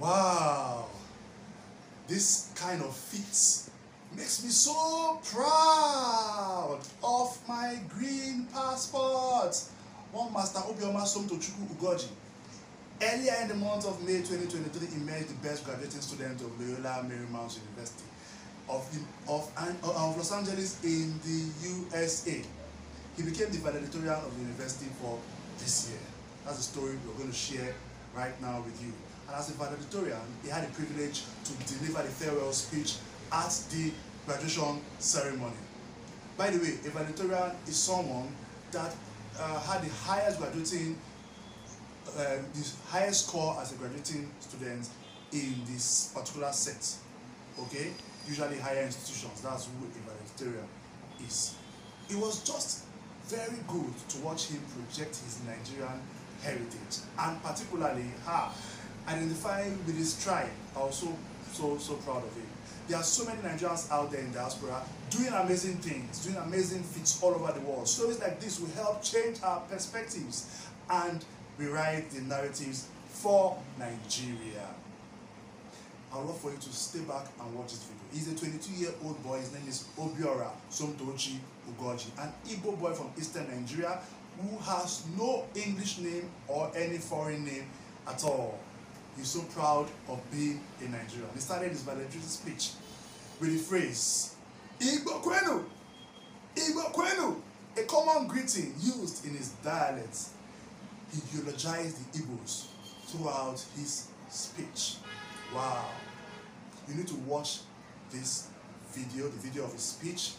Wow, this kind of feat makes me so proud of my green passport. One Master Obioma Somtochukwu Ugoji. Earlier in the month of May 2023 emerged the best graduating student of Loyola Marymount University of, the, of, of Los Angeles in the USA. He became the valedictorian of the university for this year. That's a story we're going to share right now with you. And as a valedictorian, he had the privilege to deliver the farewell speech at the graduation ceremony. By the way, a valedictorian is someone that uh, had the highest graduating, uh, the highest score as a graduating student in this particular set. Okay, usually higher institutions. That's who a valedictorian is. It was just very good to watch him project his Nigerian heritage and particularly her identifying with his tribe. Also, so so proud of him. There are so many Nigerians out there in diaspora doing amazing things, doing amazing feats all over the world. Stories like this will help change our perspectives and rewrite the narratives for Nigeria. I'd love for you to stay back and watch this video. He's a 22-year-old boy. His name is Obiora Somtochi Ugoji, an Igbo boy from eastern Nigeria who has no English name or any foreign name at all. He's so proud of being a Nigerian. He started his valedictory speech with the phrase, Igbo Kwenu, Igbo Kwenu, a common greeting used in his dialect. He eulogized the Igbos throughout his speech. Wow. You need to watch this video, the video of his speech.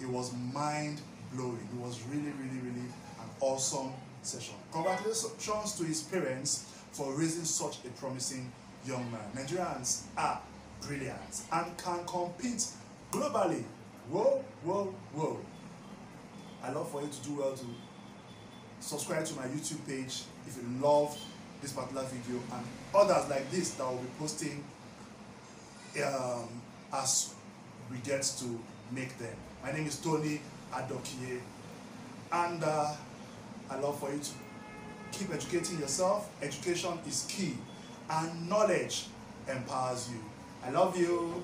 It was mind blowing. It was really, really, really an awesome session. Congratulations to his parents for raising such a promising young man. Nigerians are brilliant and can compete globally. Whoa, whoa, whoa. I love for you to do well to subscribe to my YouTube page if you love this particular video and others like this that I will be posting um, as we get to make them. My name is Tony Adokie and uh, I love for you to Keep educating yourself. Education is key, and knowledge empowers you. I love you.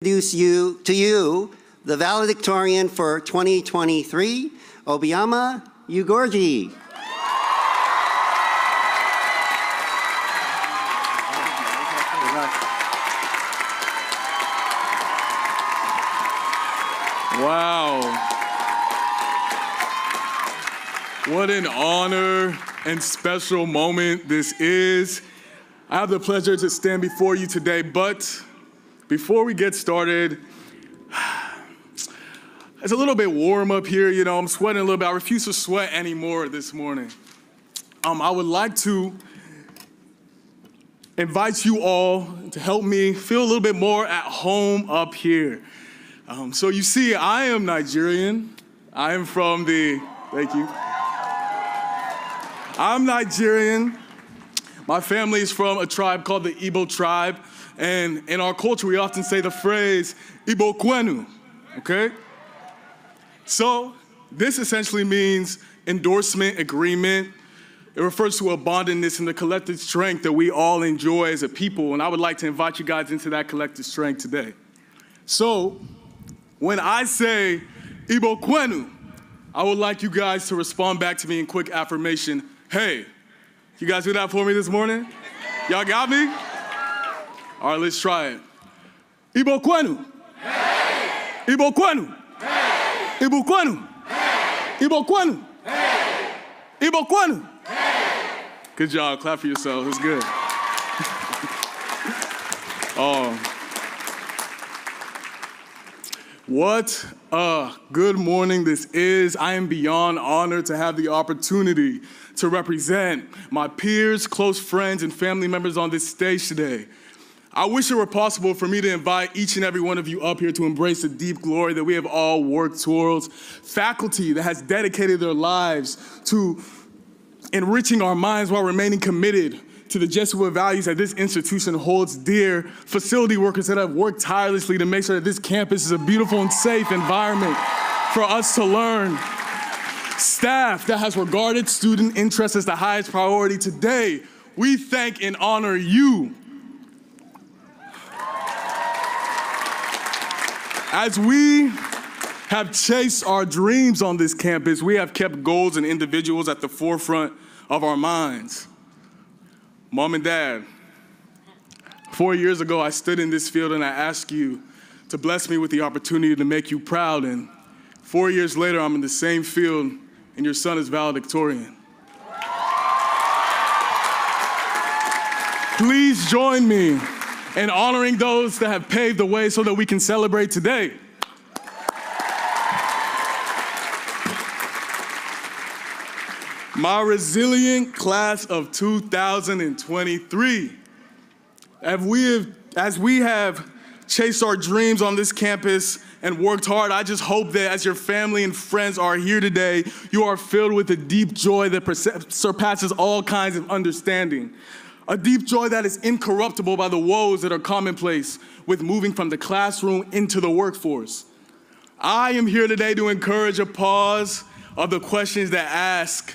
Introduce you to you the valedictorian for 2023, Obiama Ugorji. What an honor and special moment this is. I have the pleasure to stand before you today, but before we get started, it's a little bit warm up here, you know, I'm sweating a little bit. I refuse to sweat anymore this morning. Um, I would like to invite you all to help me feel a little bit more at home up here. Um, so you see, I am Nigerian. I am from the, thank you. I'm Nigerian. My family is from a tribe called the Igbo tribe. And in our culture, we often say the phrase Igbo Kwenu, okay? So this essentially means endorsement, agreement. It refers to a bondedness and the collective strength that we all enjoy as a people. And I would like to invite you guys into that collective strength today. So when I say Igbo Kwenu, I would like you guys to respond back to me in quick affirmation Hey, you guys do that for me this morning? Y'all got me? All right, let's try it. Ibo kwenu. Hey. Ibo kwenu. Hey. Ibo Hey. Ibo Hey. Ibo Hey. Good job. Clap for yourself. It's good. oh. What uh, good morning. This is. I am beyond honored to have the opportunity to represent my peers, close friends, and family members on this stage today. I wish it were possible for me to invite each and every one of you up here to embrace the deep glory that we have all worked towards. Faculty that has dedicated their lives to enriching our minds while remaining committed to the Jesuit values that this institution holds dear, facility workers that have worked tirelessly to make sure that this campus is a beautiful and safe environment for us to learn, staff that has regarded student interest as the highest priority today. We thank and honor you. As we have chased our dreams on this campus, we have kept goals and individuals at the forefront of our minds. Mom and dad, four years ago, I stood in this field and I asked you to bless me with the opportunity to make you proud. And four years later, I'm in the same field and your son is valedictorian. Please join me in honoring those that have paved the way so that we can celebrate today. My resilient class of 2023. As we have, as we have chased our dreams on this campus and worked hard, I just hope that as your family and friends are here today, you are filled with a deep joy that surpasses all kinds of understanding. A deep joy that is incorruptible by the woes that are commonplace with moving from the classroom into the workforce. I am here today to encourage a pause of the questions that ask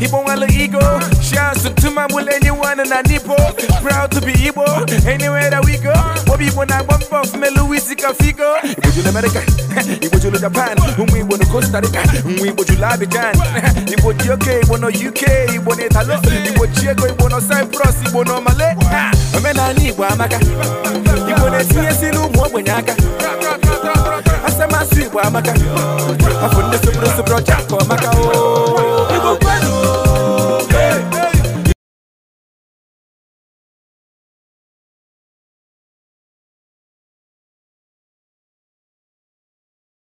Igbo wala ego. Shouts to my will anyone and a nipple. Proud to be Ibo. Anywhere that we go. Bobby when I bump off me Luisi Cafigo. Igbo jule America. Igbo jule Japan. Umu Igbo no Costa Rica. Umu Igbo jule Abidjan. Igbo UK. Igbo no UK. Igbo no Italo. Igbo Chiego. Igbo no Cyprus. Igbo no Malay. Ha. Omenani Igbo amaka. Igbo na-etinye si n'ụmụ ogbenye aka. Asem asụ Igbo amaka. Afọ ndị soboro soboro ọcha ka